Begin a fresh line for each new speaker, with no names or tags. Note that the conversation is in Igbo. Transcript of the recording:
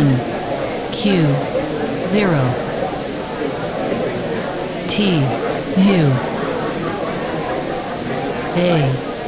N Q zero T U A